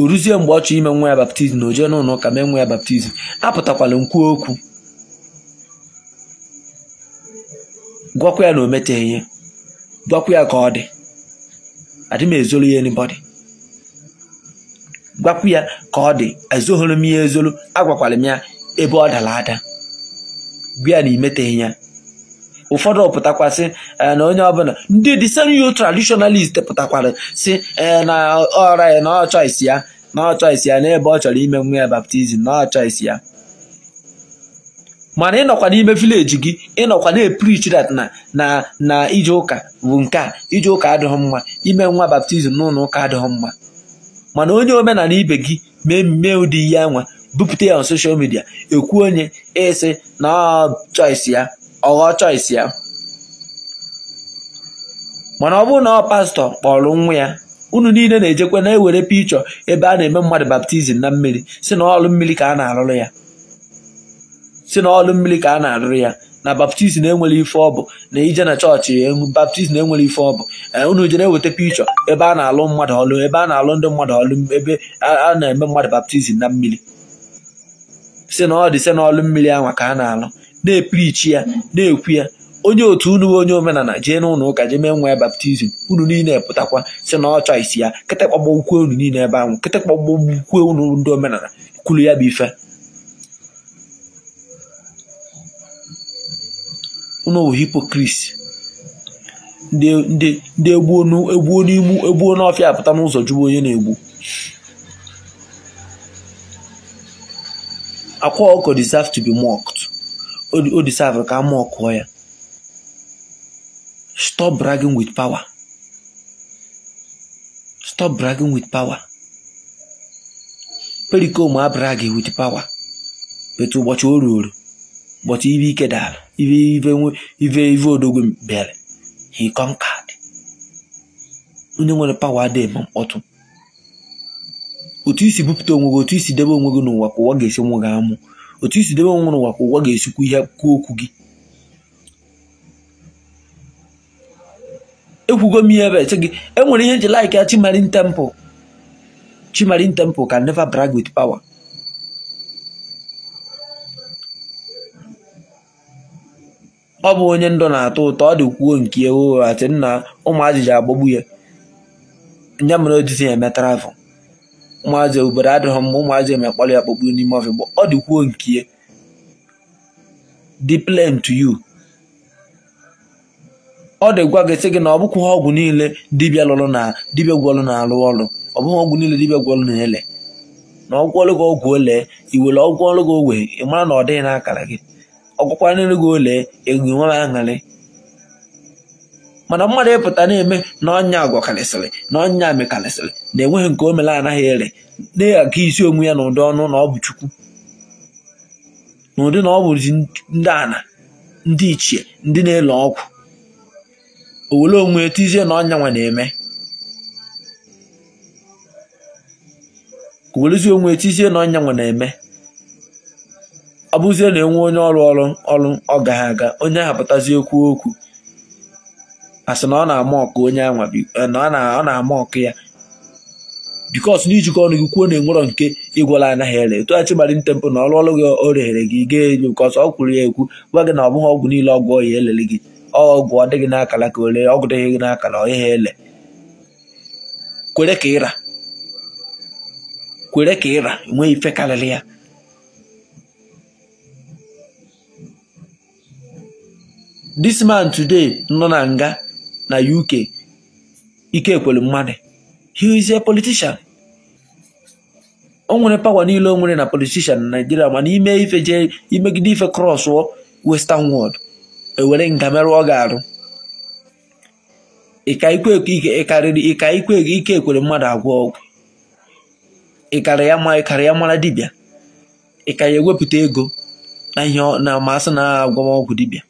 oruzi mgbe ọ ime nwa ya baptizim na o n'ụlọ ụka mee nwa ya baptizim apụtakwala nkwu okwu gwakwa ya na o meteghị ihe gwakwa ya ka ọ dị adị m ezolu ya anybody gwakwa ya ka ọ dị ezoghịrị m ya ezolu agwakwara ya ebe ọ dara ada gwa ya na imeteghị ya ụfọdụ pụtakwasị na onye ọbụla ndị disenyo tradishonalist pụtakwara si na ọra ya na ọ choice ya na ọ ya n'ebe ọ chọrọ ime nwa ya baptizim na ọ ya mana ịnọkwa n'ime vileji gị ịnọkwa na-eprichi na na na ije ụka bụ nke a ije ụka adịghị mma ime nwa baptizim n'ụlọ ụka adịghị mma mana onye omenala ibe gị mee mmemme ụdị ihe anwa bupụta ya na soshal midia ekwu onye ịsị na choice ya ọghọ choice ya mana ọ bụrụ na ọ pastọ kpọrọ nwa ya unu niile na-ejekwa na-ewere pichọ ebe a na-eme mmadụ baptizim na mmiri si na ọlụ mmiri ka a na-alụrụ ya si n'ọlụ mmiri ka a na-arụrụ ya na baptizim enwere ife ọ bụ na ije na chọọchị e, baptizim enwere ife ọ bụ e, unu jere eweta pichọ ebe a na-alụ mmadụ ọlụ ebe a na-alụ ndị mmadụ ọlụ ebe a na-eme mmadụ baptizim na mmiri si na ọ dị si n'ọlụ mmiri anwa ka a na-alụ na-eprichi ya na-ekwu ya onye otu unu onye omenala jee n'ụlọ ụka jee mee nwa baptizim unu niile pụtakwa si na ọ chọisi ya kịtịkpọgbo ukwu unu niile ebe ahụ kịtịkpọgbo ukwu unu ndị omenala kwulu ya bụ ife n'owu hipokris ndị egbuo e n'igbu egbuo n'ọfịa apụta n'ụzọ jụgbu onye na-egbu akwa ọkọ deserve to be mocked o deserve ka a mọkụọ ya stop bragging with power stop bragging with power perikom abragi with power betu ụbọchị o ruo but ibe ike dara ibe ive ive odogwu bịara he conquered onye nwere pawa adịghị eme mkpọtụ otu isi bupụta onwe gị otu isi debe onwe gị n'ụwa ka ụwa ga-esi nwe gị amụ otu isi debe onwe n'ụwa ka ụwa ga-esikwu ihe kwuo okwu gị ekwugo m ihe ebe sị gị enwere ihe nji laik ya Chimarin Temple Chimarin Temple ka neva brag with power ọ bụ onye ndụ na-atọ ụtọ ọ dịkwuo nke ewu ati nna ụmụ agbagbu ya nya mere odisi ya emetara afọ ụmụazị obodo adịghị mma ụmụazị emekpọrọ ya akpọgbu n'ime ọfịgbo ọ dịkwuo kwuo nke ya dị to you ọ dịgwa gị sị gị na ọ bụkwa ọgwụ niile dibịa lụrụ na dibịa gwọlụ na-alụ ọrụ ọ bụghị ọgwụ niile dibịa gwọlụ na-ele na ọgwụ ọrụ gị ọgwụ ole iwere ọgwụ ọrụ gị ị mara na ọ dịghị n'akara gị ọgwụkwa n'elu gị ole ego nwere aṅarị mana mmadụ ịpụta na-eme na ọnya agwa na ọnya mekarịsịrị na enweghị nke o mere anaghị ere na-aga isi onwe ya n'ụdị ọnụ na ọ bụ chukwu na ụdị na ọ bụzi ndị ana ndị ichie ndị na-ele ọgwụ owere onwe tizie na ọnya nwa na-eme ka onwe tizie na ọnya nwa na-eme ọ bụzie na enwe onye ọrụ ọrụ ọrụ ọ gaghị aga onye ahụ pụtazi okwu okwu asị na ọ na-ama ọkụ onye anwa eh, na ọ na-ama ọkụ ya bikos ijikọ ọnụ gị kwuo na enwerọ nke ịgwala anaghị ere tụghachi gbara ntempụ na ọrụ ọrụ gị o reghere gị gaa elu bikos ọ kwuru ya ekwu gwa gị na ọ bụghị ọgwụ niile ọgwụ ọya elele gị ọgwụ ọ dịghị n'akara ka ole ọgwụ dịghị gị n'akara ọ ele kwere ka ịra kwere ka ịra nwee ife karịrị ya this man today nọ na nga na UK Ikekwelu Mmadụ he is a politician o nwere pawa niile o nwere na politician na Nigeria mana ime ife jee imegide ife cross western world ewere nga merụ ọ ga-arụ ka ikwe Ikekwelu Mmadụ agwọ ọgwụ ịkara ya ya mara dibịa ịka ya ewepụta ego na ihe na masị na dibia. dibịa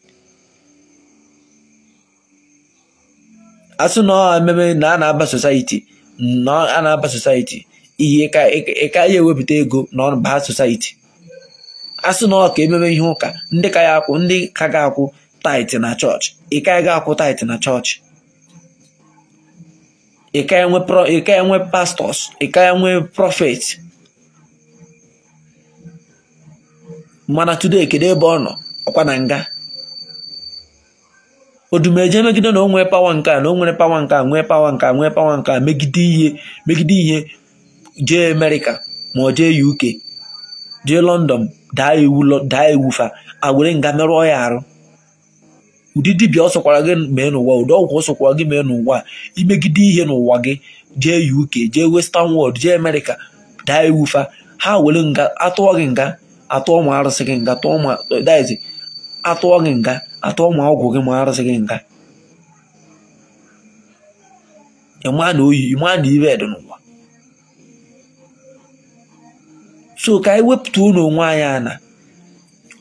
asụ na ememe na a na-aba sosaiti na a na-aba sosaiti ihe ka ya ewepụta ego na baa sosaiti asụ na ka ememe ihe ụka ndị ka ya akwụ ndị ka ga-akwụ taịtị na chọọchị ịka ya ga-akwụ taịtị na chọọchị ịka ya nwe pastọs ịka ya nwe prọfet mana tude kedu ebe ọ nọ ọkwa na nga odumeje megide na o nwee pawa nke a na o nwere pawa nke a nwee pawa nke a nwee pawa nke a megide ihe megide ihe jee amerịka ma ọ jee uk jee lọndọn daa iwu daa iwu fa awere nga merụọ ya arụ ụdị dibịa ọ sọkwara gị mee n'ụwa ụdị ọgwụ ọ sọkwara gị mee n'ụwa imegide ihe n'ụwa gị jee uk jee western world jee amerịka daa iwu fa ha were nga atụọ gị nga atụọ ma arụsị gị nga tụọ ma daizi atụọ gị nga atụọ ma ọgwụ gị ma arụsị gị nga ịma na oyi ịma na ibe dị n'ụwa so ka anyị wepụta unu onwe anyị ana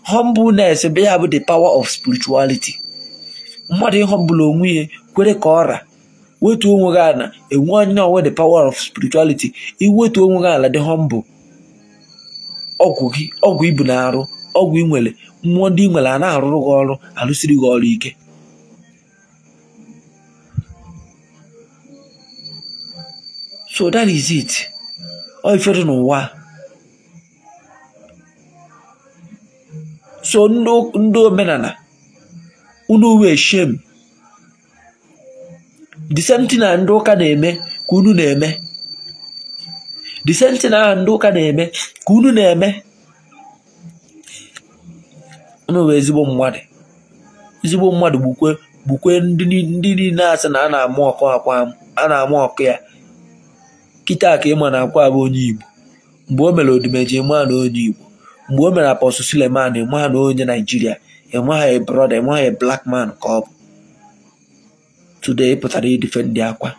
humbleness be ya bụ the power of spirituality mmadụ ịhọmbụla onwe ya kwere ka ọra wetu onwe gị ala enwe onye ọnwe the power of spirituality iwetu onwe gị ala dị humble ọgwụ gị ọgwụ ibu na-arụ ọgwụ ị nwere mmụọ ndị nwere a na-arụrụ gị ọrụ alụsiri gị ọrụ ike so that is it ọ ifere n'ụwa so ndị omenala unu wee shem the na ndị ụka na-eme ka unu na-eme na ndị ụka na-eme ka unu na-eme nụrụ ezigbo mmadụ ezigbo mmadụ gbukwe ndị niile asị na a na-amụ ọkụ akwa a na-amụ ọkụ ya kịta ka ịma na akwa bụ onye igbo mgbe o mere odimeji ịma na onye igbo mgbe o mere apọsụ Suleman ịma na onye naijiria ịma ha brọda ịma blak man ka ọ bụ ịpụtara pụtara ndị akwa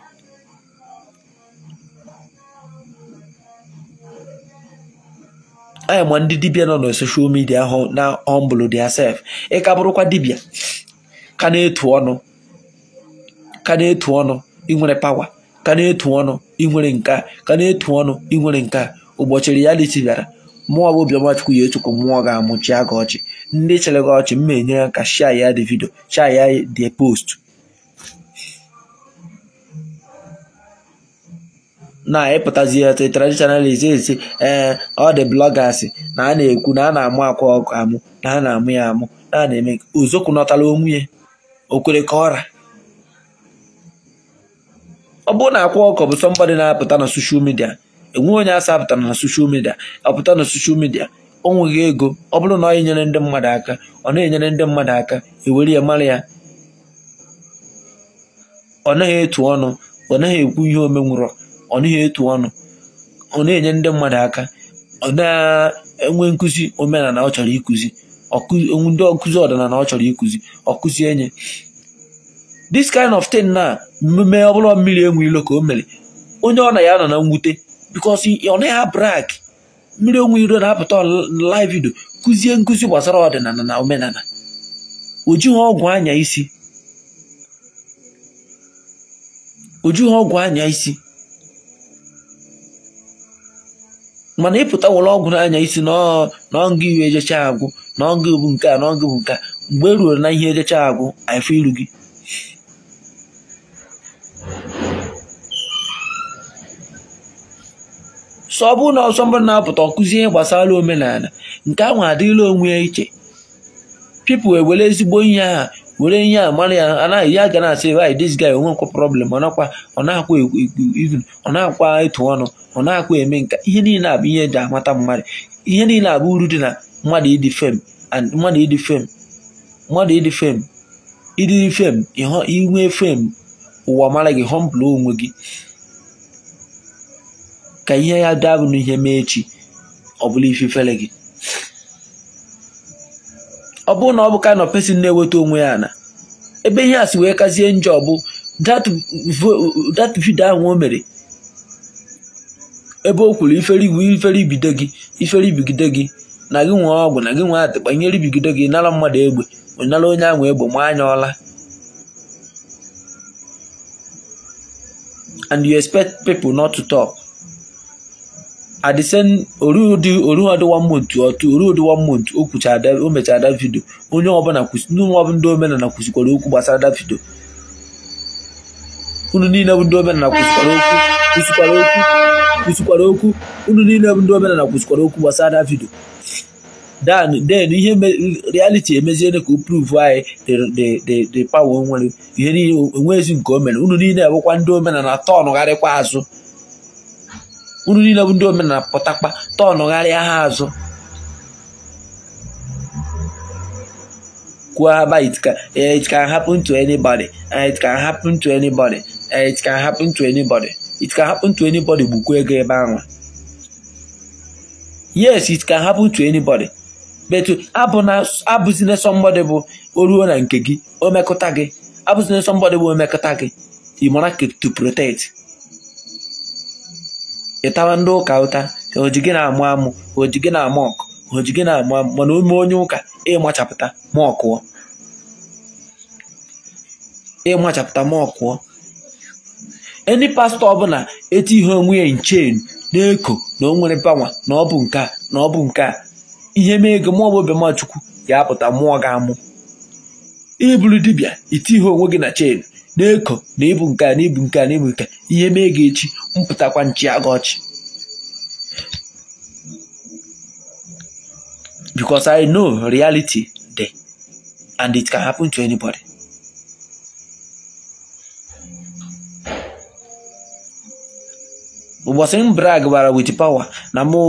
anya ma ndị dibia nọ na soshal midia ahụ na humble sef ịka bụrụkwa dibia ka na-etu ọnụ ka na-etu ọnụ inwere pawa ka na-etu ọnụ inwere nke a ka na-etu ọnụ inwere nke a ụbọchị reality bịara mụọ bụ Obiọmachukwu ya echukwu ga-amụchi aga ọchị ndị chere gị ọchị mma enyere ka shia ya dị vidio shia ya dị post na-ịpụtazi etu traditionalist esi ee ọ dị na a na-ekwu na a na-amụ akwa ọkụ amụ na a na-amụ ya amụ na a na-eme ozokwu nọtala onwunye okwere ka ọra ọ bụrụ na akwa ọkụ bụ somebody na-apụta na soshal media enweghị onye asa apụta na soshal media ọpụta na soshal media ọ nweghị ego ọ bụrụ na ọ enyere ndị mmadụ aka ọ na-enyere ndị mmadụ aka ewere ya mara ya ọ naghị etu ọnụ ọ naghị ekwu ihe omenwụrọ ọ naghị etu ọnụ ọ na-enye ndị mmadụ aka ọ na-enwe nkụzi omenala ọ chọrọ ịkụzi ndị ọkụzi ọdịnala ọ chọrọ ikụzi ọkụzi enye this kind of thing na mmemme ọbụla mmiri enwe ilo ka o mere onye ọ na ya nọ na mwute because ọ naghị abrak mmiri onwe iro na-apụta live kụzie nkụzi gbasara ọdịnala na omenala o jighị ọgwụ anya isi mana ịpụta wụrụ ọgwụ n'anya isi n'ọngụ iwe ejecha agwụ n'ọngụ bụ nke a n'ọngụ bụ nke a mgbe e ruo na ihe ejecha agwụ afọ iru gị so ọ bụ na ọsọ mbụ na-apụta ọkụzi ihe gbasara omenala nke ahụ adịla onwe ya iche pipụl ewere ezigbo ihe ahụ were ihe a mara ya anaghị ya ga na-asị wanyị dis guy onwe nkwụ problem ọ nakwa ọ na-akwa e, e, even ọ na-akwa ịtụ ọnụ ọ na-akwa eme nka ihe niile a bụ ihe eji amata mmadụ ihe niile a bụ uru dị na mmadụ ịdị fem mmadụ ịdị fem mmadụ ịdị fem ịdị fem inwe fem ụwa mara gị họmpụlụ onwe gị ka ihe ya daa bụ n'ihe mee echi ọ bụla ife fere gị ọ bụrụ na ọ bụ ka of pesin na-eweta onwe ya na ebe ihe a si wee kazie njọ bụ dat vidio ahụ o mere ebe o kwuru ifere ibido gị ifere ibigide gị na gị nwee ọgwụ na gị nwee atịkpa nyere ibigide gị nara mmadụ egbe nara onye ahụ egbe ma anya ọla and you expect people not to talk. at the same oriodi one month otu oriodi one month o kwuchara o mechara da vidio onye ọbụla ndị kwụsịkwara okwu gbasara da vidio unu niile bụ ndị omenala kwụsịkwara okwu kwụsịkwara okwu kwụsịkwara okwu unu niile bụ ndị kwụsịkwara okwu gbasara da vidio dan den ihe reality emeziene ka o pruvu anyị dị power nwere ihe niile nke o mere unu niile bụkwa ndị omenala tọn gharịkwa azụ uru niile bụ ndị omenala pụtakpa tọnụgharịa ha azụ kwuo aba it can, eh, eh, eh, it can happen to anybody it can happen to anybody it can happen to anybody it can happen to anybody gbukwa ego ebe ahụ yes it can happen to anybody but abụzina somebody bụ o ruo na nke gị o mekụta gị abụzina somebody bụ o mekụta gị ị mara to protect ịtawa ndị ụka ụta oji gị na-amụ amụ oji gị na-amụ ọkụ oji gị na-amụ amụ mana ome onye ụka ịmachapụta ma ọkụọ ịmachapụta ma ọkụọ ndị pastọ ọbụla eti ihe onwe ya nchen na-eko na o nwere pawa na ọ bụ nke a na ọ bụ nke a ihe mee ego maọbụ obemachukwu ga-apụta mụọ ga-amụ iburu dibịa iti ihe onwe gị na chen na-eko na ịbụ nke a na ịbụ nke a na ịbụ nke ihe mee ga echi mpụtakwa nchi aga ọchị because I know reality there and it can happen to anybody. ụbọchị m brag gbara wit pawa na mụ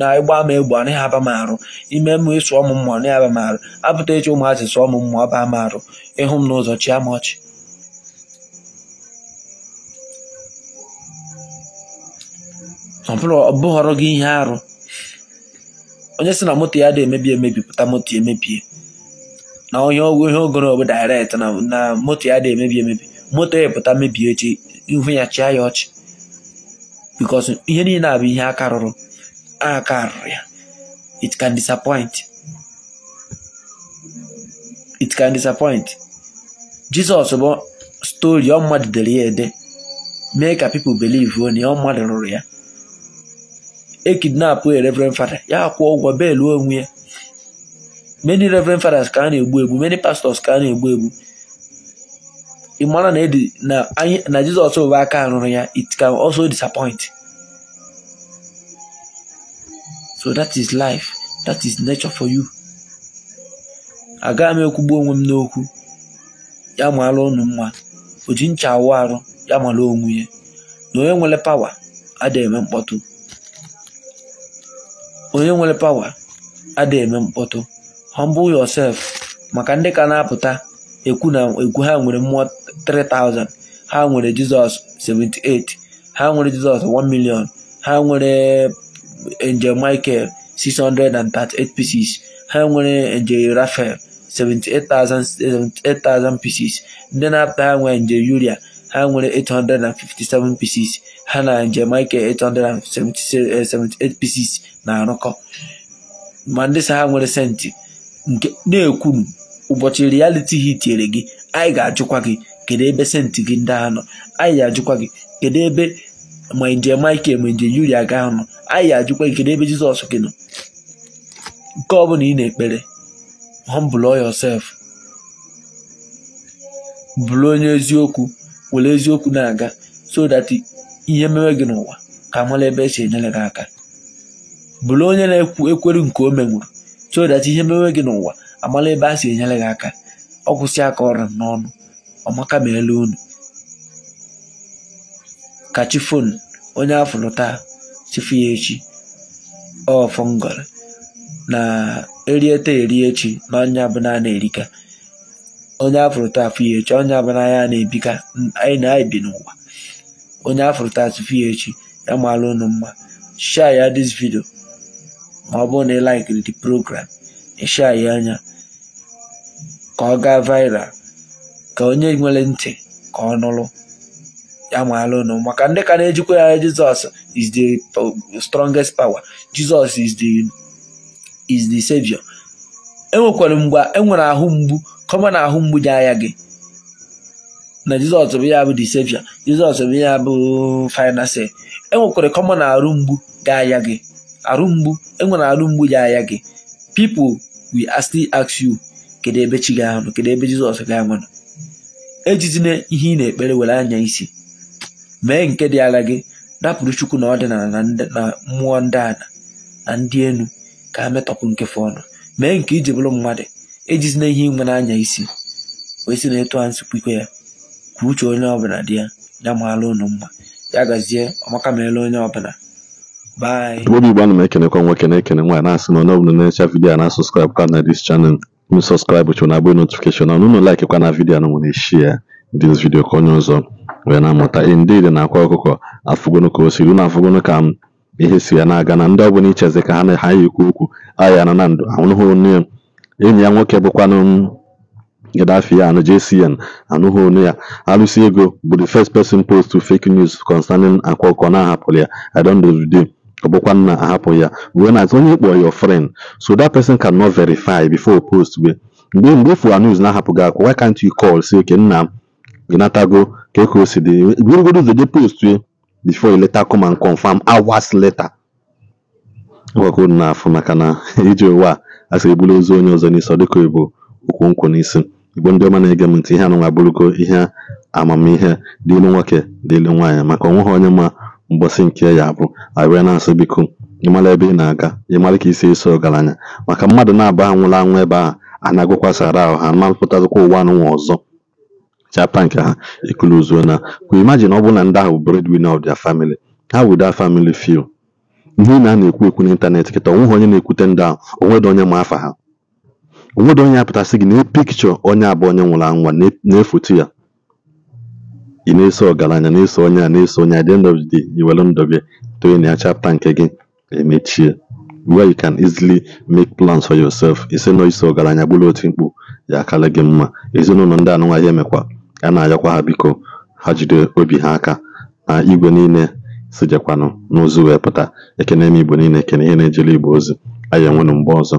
na ịgba m egbo anaghị aba m arụ ime m ịsụ ọmụ mmụọ aba m arụ apụta echi ụmụazị sụọ m aba m arụ ịhụ m n'ụzọ chi ama ọchị ọ gị ihe arụ onye si na moto ya dị emebi emebi pụta moto emebie na onye ọgwụ ihe ogoro bụ direct na moto ya dị emebi emebi moto ya pụta mebie echi ihu ya chịa ya ọchị bikos ihe niile a bụ ihe aka rụrụ aka rụrụ ya it can disappoint it can disappoint Jizọs bụ stori ọ mmadụ dere ya ede mee ka people believe na ọ mmadụ rụrụ ya ekidnapụ e reverend fada ya kwụọ ụgwọ bel onwe ya many reverend fathers ka a egbu egbu many pastors ka a na-egbu egbu ị maara na edi na jizọs bụ aka arụrụ ya it can also disappoint so that is life that is nature for you agaghị m ekwugbu onwe m n'okwu ya mụala ụnụ mma o ji ncha awụ arụ ya mara onwe ya na onye nwere pawa adịghị eme mkpọtụ onye nwere pawa adịghị eme mkpọtụ humble yourself maka ndị ka na-apụta ekwu na ekwu ha nwere mmụọ 3000 ha nwere jizọs 78 ha nwere jizọs 1 million ha nwere angel michael 638 pieces ha nwere angel rafael 78,000 pieces ndị na-apụta ha nwere nje yuria ha nwere 857 pieces ha na Jamaica 878 eh, pieces na-arụkọ ma ndị sa ha nwere senti nke na-ekwuru ụbọchị reality hit tinyere gị anyị ga-ajụkwa gị kedu ebe senti gị ndị ahụ nọ anyị ga-ajụkwa gị kedu ebe ma nje Michael ma nje Yuria ga nọ anyị ga-ajụkwa gị kedu ebe Jizọs gị nọ nke ọ ị na-ekpere humble yourself bụrụ onye eziokwu were eziokwu na-aga so that ihe mewe gị n'ụwa ka mara ebe esi enyere gị aka bụrụ onye na-ekwu ekweru nke o menwuru so that ihe mewe gị n'ụwa amala ebe a si enyere gị aka ọ kwụsị aka ọrụ n'ọnụ ọmaka ma elu unu ka chi fon onye afụrụ taa chifu ya echi ọfọngọrọ na erieta eri echi n'anya bụ naanị erika onye afụrụ taa afụ onye abụna ya na-ebika anyị na anyị bi n'ụwa onye afụrụ taa tụfụ ya echi ya maala unu mma share ya this video ma ọ bụrụ na ị laikiri program ịsha ya anya ka ọ gaa viral ka onye nwere ntị ka ọ nụrụ ya maala unu maka ndị ka na-ejikwa ya Jizọs is the strongest power Jizọs is the is the savior enwekwara mgbe enwere ahụ mgbu kọma na ahụ mgbuji anya gị na jizọs bụ ya bụ disepshọn jizọs bụ ya bụ fainansi enwekwara kọma na arụ mgbu ga anya gị arụ mgbu enwere arụ mgbu ji anya gị people will still ask you kedu ebe chi ga anọ kedu ebe jizọs ga-anọ ejizina ihe ị na-ekpere were anya isi mee nke dị ala gị napụrụ chukwu na ọdịnala na mmụọ ndị ala na ndị enu ka a metọpụ nkefe ọnụ. mee nke iji bụrụ mmadụ ejizina ihe igwe na-anya isi wee sị na etu a nsukwu ike ya kwuo uche onye ọbụla dị ya ya maala ụnụ mma ya gazie ọmaka meela onye ọbụla obi igbo ana m ekenekwa nwoke na-ekene nwaanyị na-asị na onye ọbụla na-echa vidiyo a na-asụ skraịbụ ka na dis chanel m sọskraịbụ chụ na agba notifikeshọn ọnụ ụlọ laik kwa na vidiyo na nwere shi ya dị vidiyo ka onye ọzọ wee na-amụta indid na akwa ọkụkọ afụgono ka o siri unu afụgono ka m ihe si ya na-aga na ndị ọbụla icheze ka ha na ha ya okwu aha na na ndụ ahụrụ onye enyi ya nwoke bụkwanụ Gaddafi and JCN anụghị olu ya. Alụsị ego bụ the first person post to fake news concerning akwa na ahapụrụ ya. I don ọ na ahapụ ya whenas onye kpọrọ your friend so that person not verify before post we mgbe mgbe fụwa news na why can't you call say nna m e ka o si dị we before you later come and confirm hours later na maka na asịrị bụrụ ozu onye ọzọ n'isi ọ dịka ịbụ ụkwụ nkwụ n'isi igbo ndị ọma na-ege m ntị ihe anụnwa abụrụgo ihe amamihe dịlu nwoke dịlu nwaanyị maka ha onye ma mgbọsị nke ya abụ abịa na-asụ biko ịmara ebe ị na-aga ịmara ka isi eso ọgaranya maka mmadụ na aba anwụrụ anwụ ebe ahụ a na-agụkwasara ahụ ha mapụtazikwa ụwa anụnwa ọzọ chapa nke ha ikulu na we imajin ọ bụrụ na ndị ahụ breadwinner of their family ha would that family feel ihe ị na-ekwu ekwu n'ịntanetị kịta onweghị onye na-ekwute ndị a onwedị onye ma afa ha onwedị onye apụtasị gị na pikchọ onye abụọ onye nwụrụ anwụ na-efoto ya ị na-eso ọgaranya na-eso onye a na-eso onye a the end of iwere ndụ gị toye na ya chapta nke gị emechie where you can easily make plans for yourself ise nọ iso ọgaranya gburu otu mkpu ya akarị gị mma ezinụlọ ndị anụnwa ya emekwa a na-ayọkwa ha biko ha jide obi ha aka na igwe niile sijekwanụ n'ozu wee pụta ekene m igbo niile ekene ihe na ejele igbo ozi anyị enwenụ mgbe ọzọ